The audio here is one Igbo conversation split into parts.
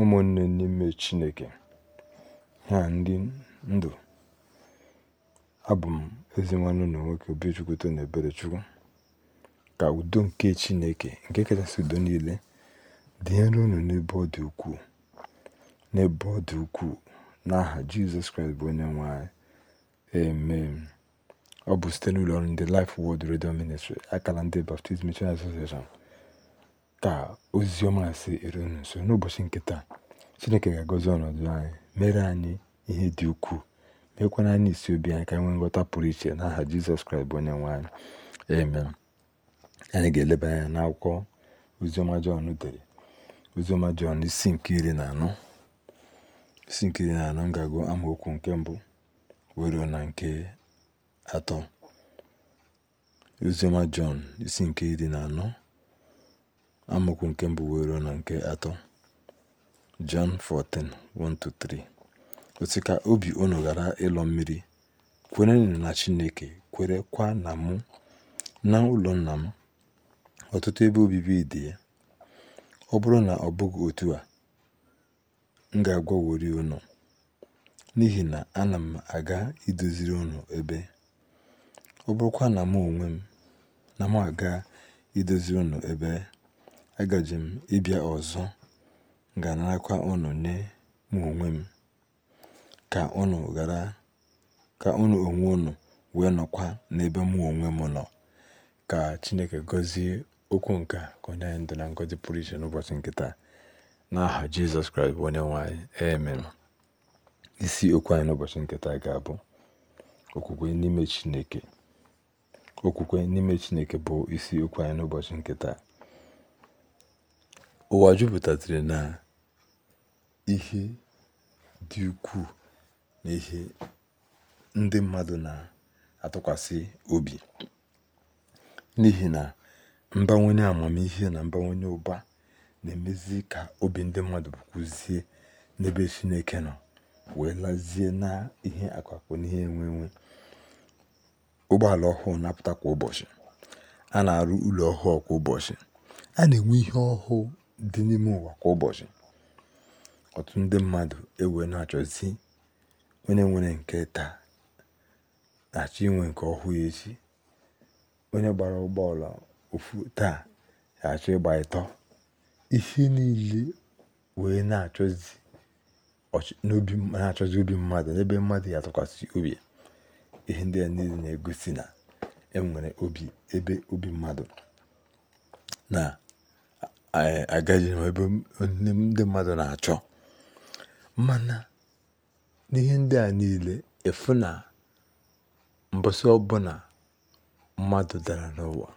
ụmụnne n'ime Chineke ha ndị ndụ abụ m ezi nwanne ụlọ nwoke Obichukwu Tony chukwu ka udo nke Chineke nke kachasị udo niile dịnyere unu n'ebe ọ dị ukwuu n'ebe ọ dị ukwuu n'aha Jizọs Kraịst bụ onye nwanyị ee ọ bụ site n'ụlọ ọrụ ndị lif wod redio Ministry akala ndị Baptist Mission Association Ka ozi ọma si eru nso n'ụbọchị nke taa, Chineke ga-agọzi ọnọdụ anyị, mere anyị ihe dị ukwuu, meekwara anyị isi obi anyị ka anyị nwee nghọta pụrụ iche n'aha Jizọs Kraịst bụ onye anyị. Amen. Anyị ga-eleba anya n'akwụkwọ ozioma Jọn dere, ozioma Jọn isi nke iri na anọ isi nke iri na anọ m amaokwu nke mbụ wero na nke atọ ozioma Jọn isi nke iri na anọ Amaokwu nke mbụ wee ruo na nke atọ Jon 14:1-3 otu ka obi unu ghara ịlọ mmiri kwere na Chineke kwa na mụ na ụlọ nna m ọtụtụ ebe obibi dị ya ọ bụrụ na ọ bụghị otu a m ga-agwawori unu n'ihi na ana m aga idoziri unu ebe ọ bụrụkwa na mụ onwe m na m aga idoziri unu ebe agaje m ịbịa ọzọ ganarakwa unu nye mụ onwe m ka unu ghara ka unu onwe unu wee nọkwa n'ebe mụ onwe m nọ ka Chineke gọzie okwu nke ka onye anyị ndụ na ngọzi pụrụ iche n'ụbọchị nkịta taa n'aha Jizọs Kraịst bụ onye nwanyị amen isi okwu anyị n'ụbọchị nke ga-abụ okwukwe n'ime Chineke okwukwe n'ime Chineke bụ isi okwu anyị n'ụbọchị nkịta ụwa jupụtatịrị na ihe dị ukwuu na ihe ndị mmadụ na-atụkwasị obi n'ihi na mbawanye amamihe na mbawanye ụba na-emezi ka obi ndị mmadụ bụkwuzie n'ebe Chineke nọ wee lazie na ihe akụakụ na ihe enwe ụgbọala ọhụụ na-apụta kwa ụbọchị a na-arụ ụlọ ọhụụ kwa ụbọchị a na-enwe ihe ọhụụ dị n'ime ụwa kwa ụbọchị ọtụtụ ndị mmadụ ewee na-achọzi onye nwere nke taa na-achọ inwe nke ọhụụ echi onye gbara ụgbọala ofu taa achọ ịgba ịtọ ihe niile wee na-achọzi obi mmadụ n'ebe mmadụ ya atụkwasị obi ihe ndị a niile na-egosi na enwere obi ebe obi mmadụ na agaghị m ebe ndị mmadụ na-achọ mana n'ihe ndị a niile efu na mbọsị ọbụla mmadụ dara n'ụwa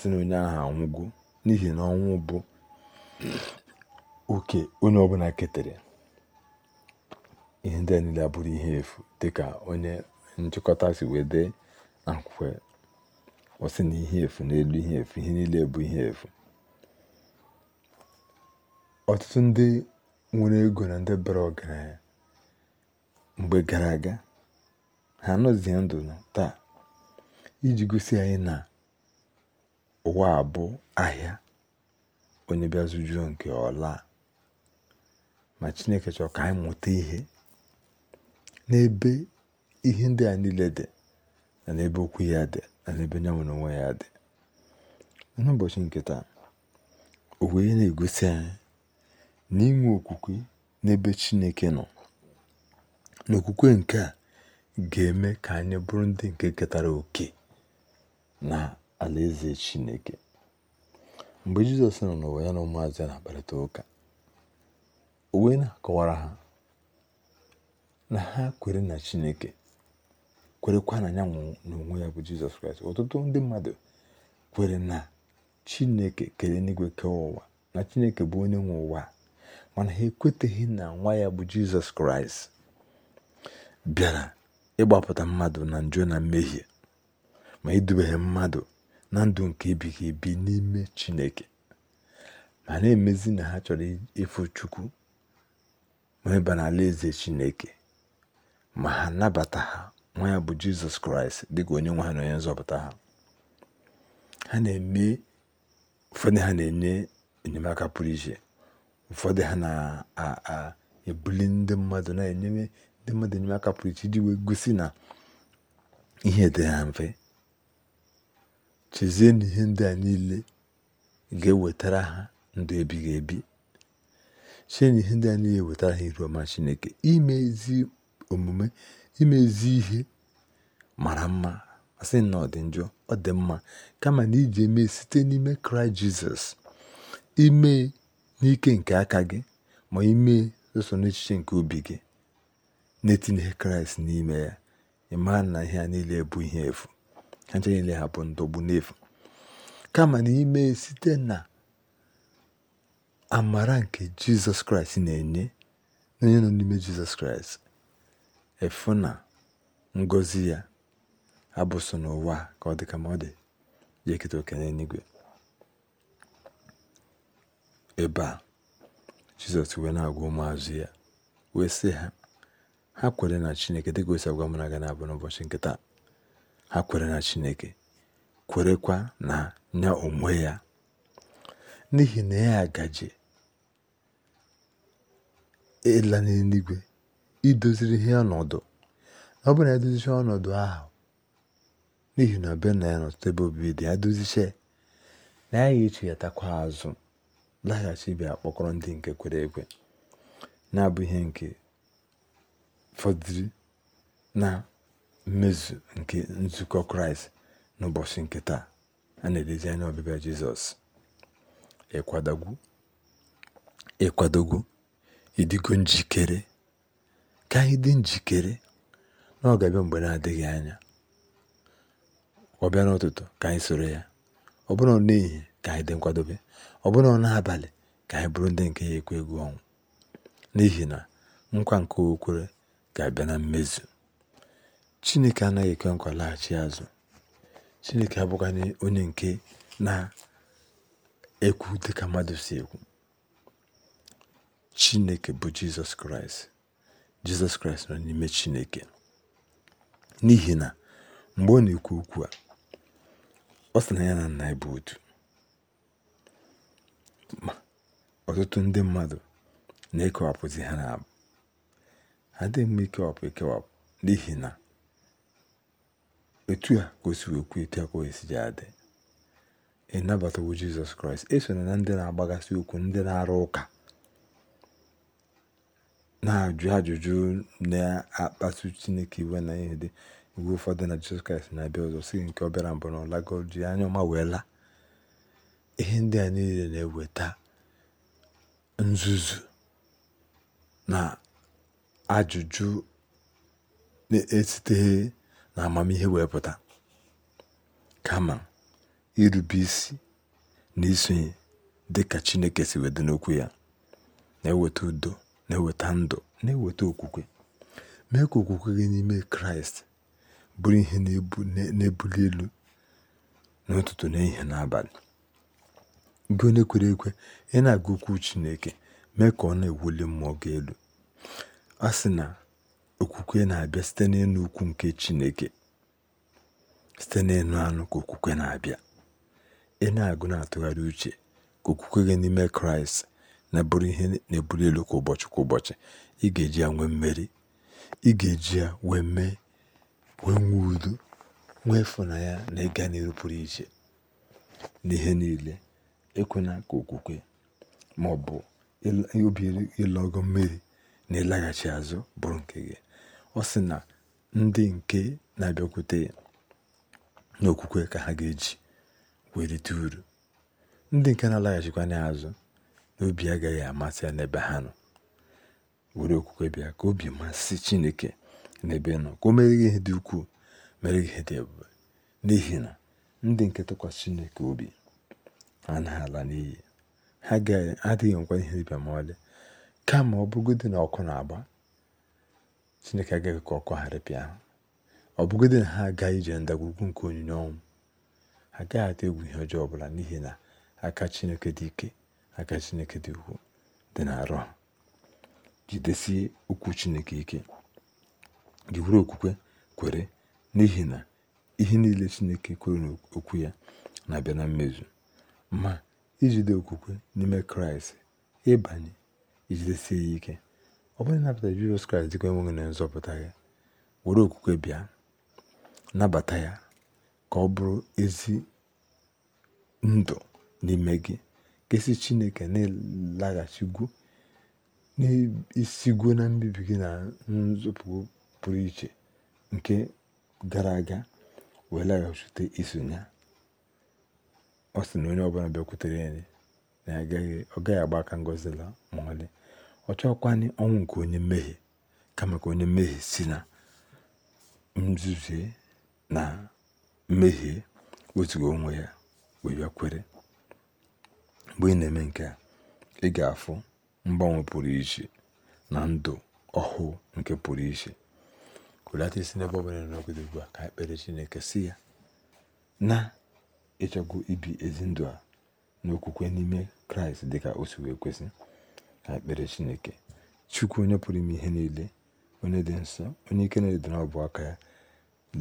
sị na onye ahụ anwụgo n'ihi na ọnwụ bụ oke onye ọbụla ketere ihe ndị a niile abụrụ ihe efu dịka onye nchịkọta si wee dee na ọ sị na ihe efu n'elu ihe efu ihe niile bụ ihe efu ọtụtụ ndị nwere ego na ndị bara ọgaranya mgbe gara aga ha anọzie ndụ taa iji gosi anyị na ụwa a bụ ahịa onye bịa zụjuo nke ọla ma chineke chọrọ ka anyị mụta ihe n'ebe ihe ndị a niile dị na n'ebe okwu ya dị na n'ebe nyanwụ na onwe ya dị n'ụbọchị nke taa o na-egosi anyị ninwe okwukwe n'ebe Chineke nọ n'okwukwe nke a ga-eme ka anyị bụrụ ndị nke ketara oke na alaeze Chineke mgbe Jizọs nọ n'ụwa ya na ụmụazị ya na-akparịta ụka o wee na-akọwara ha na ha kwere na Chineke kwerekwa na ya n'onwe ya bụ Jizọs Kraịst ọtụtụ ndị mmadụ kwere na Chineke kere n'igwe kee ụwa na Chineke bụ onye nwe ụwa mana ha ekweteghị na nwa ya bụ jizọs kraịst bịara ịgbapụta mmadụ na njọ na mmehie ma idubeghe mmadụ na ndụ nke ebighị ebi n'ime chineke ma na-emezi na ha chọrọ ịfụ chukwu ma ịba n'ala eze chineke ma ha nabata ha nwa ya bụ jizọs kraịst dịka onye nwe ha na onye nzọpụta ha ha na-eme ụfọdụ ha na-enye enyemaka pụrụ iche ụfọdụ ha na-ebuli ndị mmadụ na-enyere ndị mmadụ aka pụrụ iche iji wee gosi na ihe dị ha mfe chezie na ihe ndị a niile ga-ewetara ha ndụ ebighị ebi chee na ihe ndị a niile wetara ha iru ọma chineke imezi omume imezi ihe mara mma asị na ọ njọ ọ dị mma kama na iji eme site n'ime kraịst jizọs ime n'ike nke aka gị ma ime sọsọ n'echiche nke obi gị na-etinyeghị kraịst n'ime ya ịmaa na ihe a niile bụ ihe efu ha nche niile ha bụ ndọgbu n'efu kama na ime site na amara nke jizọs kraịst na-enye onye nọ n'ime jizọs kraịst efu na ngọzi ya abụso n'ụwa ka ọ dị ma ọ dị ebe a jizọs wee na-agwa ụmụazụ ya wee sị ha ha kwere na chineke dịka osi agwa mụ na gana abụ n'ụbọchị nke taa ha kwere na chineke kwerekwa na ya onwe ya n'ihi na ya agaje ịla n'eluigwe idoziri ihe ọnọdụ ọ bụ na edozicha ọnọdụ ahụ n'ihi na be na ya n'ọtụtụ ebe obibi dị ya dozicha na ya ga-echeghatakwa azụ laghachi bịa kpọkọrọ ndị nke kwere ekwe na-abụ ihe nke fọdụrụ na mmezu nke nzukọ kraịst n'ụbọchị nke taa a na edezi anya ọbịbịa jizọs ịkwadogwu ịkwadogwu ịdịgo njikere ka anyị dị njikere na mgbe na-adịghị anya ọbịa n'ụtụtụ ka anyị soro ya ọ bụrụ n'ehihie ka anyị dị nkwadobe ọ bụrụ na abalị ka anyị bụrụ ndị nke ya ekwe egwu ọnwụ n'ihi na nkwa nke okwere ga-abịa na mmezu chineke anaghị ekwe nkwa laghachi azụ chineke abụghị onye nke na-ekwu dịka mmadụ si ekwu chineke bụ jizọs kraịst jizọs kraịst nọ n'ime chineke n'ihi na mgbe ọ na-ekwu okwu a ọ sị na ya na nna ya otu ọtụtụ ndị mmadụ na-ekewapụzi ha na ha dị mma ikewapụ ekewapụ n'ihi na etu a ka o si etu a ka o si adị ịnabatawo jizọs kraịst eso na ndị na-agbagasị okwu ndị na-arụ ụka na-ajụ ajụjụ na-akpasu chineke iwe na ihe dị iwe ụfọdụ na jizọs kraịst na-abịa ọzọ si nke ọ bịara mbụ na ọla lago ọma wee laa ihe ndị a niile na-eweta nzuzu na ajụjụ na esite na amamihe wepụta kama irube isi na isonye dị ka Chineke si wedị n'okwu ya na-eweta udo na-eweta ndụ na-eweta okwukwe mee ka okwukwe gị n'ime Kraịst bụrụ ihe na-ebuli elu n'ụtụtụ n'ihi n'abalị gị onye kwere ekwe ị na-agụ okwu chineke mee ka ọ na-ewuli mmụọ gị elu a sị na okwukwe na-abịa site n'ịnụ ukwu nke chineke site n'ịnụ anụ ka okwukwe na-abịa ị na-agụ na-atụgharị uche ka okwukwe gị n'ime kraịst na-abụrụ ihe na-ebuli elu kwa ụbọchị kwa ụbọchị ị ga-eji ya nwee mmeri ị ga-eji ya wee mee wee nwee udo nwee ịfụnanya na ịga n'elu pụrụ iche n'ihe niile ekwena ka okwukwe ma ọ bụ obi ịlọ ọgọ mmiri na ịlaghachi azụ bụrụ nke gị ọ sị na ndị nke na-abịakwute ya n'okwukwe ka ha ga-eji wee rite uru ndị nke na-alaghachikwa n'azụ azụ n'obi agaghị amasị ya n'ebe ha nọ were okwukwe bịa ka obi masị chineke n'ebe nọ ka o mere gị ihe dị ukwuu mere gị ihe dị ebube n'ihi na ndị nke tụkwasị chineke obi a ala n'iyi ha adịghị nkwa ihe dịbịa ma ọlị kama ọ bụgodị na ọkụ na-agba chineke agaghị ka ọkụ gharịpịa ha ọ bụgodị na ha agaghị ije ndagwurugwu nke onyinye ọnwụ ha agaghị atụ egwu ihe ọjọọ ọbụla n'ihi na aka chineke dị ike aka chineke dị ukwuu dị na-arụ ha jidesie okwu chineke ike gị okwukwe kwere n'ihi na ihe niile chineke kwere n'okwu ya na-abịa na mmezu ma ijide okwukwe n'ime kraịst ịbanye ijidesie ya ike ọ bụrụ ịnabata jizọs kraịst dịka enweghị na nzọpụta ya were okwukwe bịa nabata ya ka ọ bụrụ ezi ndụ n'ime gị esi chineke na-elaghachigwu na mbibi gị na nzọpụ pụrụ iche nke gara aga wee laghachite isonye ọ sị na onye ọbụla bịakwutere ya na ọ gaghị agba aka ngozi la ọ ọlị ọ chọkwanị ọnwụ nke onye mmehie kama ka onye mmehie si na nzuzie na mmehie wetuga onwe ya wee bịakwere mgbe ị na-eme nke a ị ga-afụ mgbanwe pụrụ iche na ndụ ọhụụ nke pụrụ iche hulata isi n'ebe ọ bụla nọgide ugbu a ka ekpere chineke si ya na ịchọkwu ibi ezi ndụ a n'okwukwe n'ime kraịst dị ka o si wee kwesị na ekpere chineke chukwu onye pụrụ ime ihe niile onye dị nsọ onye ike na-edere ọbụ aka ya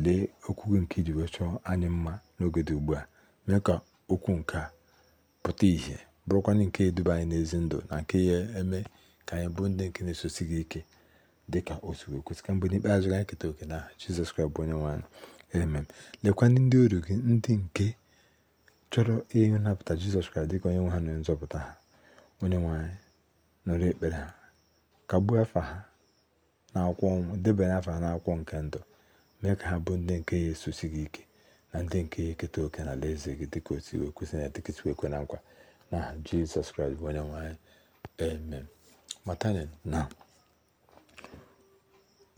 lee okwu nke iji wee chọọ anyị mma n'oge dị ugbu a mee ka okwu nke a pụta ìhè bụrụkwanye nke eduba anyị n'ezi ndụ na nke ya eme ka anyị bụ ndị nke na-esosi gị ike dị ka o si wee kwesị ka mgbe n'ikpeazụ anyị keta oke na jizọs kraịst bụ onye nwe anyị emem lekwa ndị ọrụ gị ndị nke chọrọ ihe nnapụta jizọs kraịst dịka onye nwe ha na nzọpụta ha onye nwanyị nụrụ ekpere ha kagbuo afa ha n'akwụkwọ ọnwụ debanye afa ha n'akwụkwọ nke ndụ mee ka ha bụ ndị nke ya esosi gị ike na ndị nke ya eketa oke na alaeze gị dịka otu iwe kwesị na dịkịtụ ekwe na nkwa na jizọs kraịst bụ onye nwe anyị amen matani na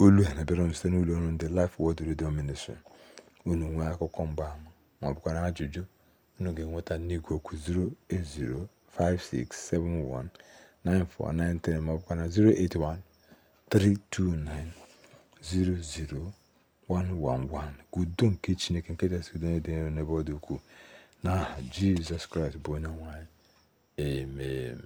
olu a na site n'ụlọ ọrụ ndị lif Word redio Ministry unu nwee akụkọ mgbaama ma ọ ajụjụ unu ga-enweta n'igwe okwu 08056719493 maọbụkwa na 08132900111 ka udo nke chineke nke kachasị udo dị n'ebe ọ dị ukwuu n'aha jizọs kraịst bụ onye nwanyị anyị amen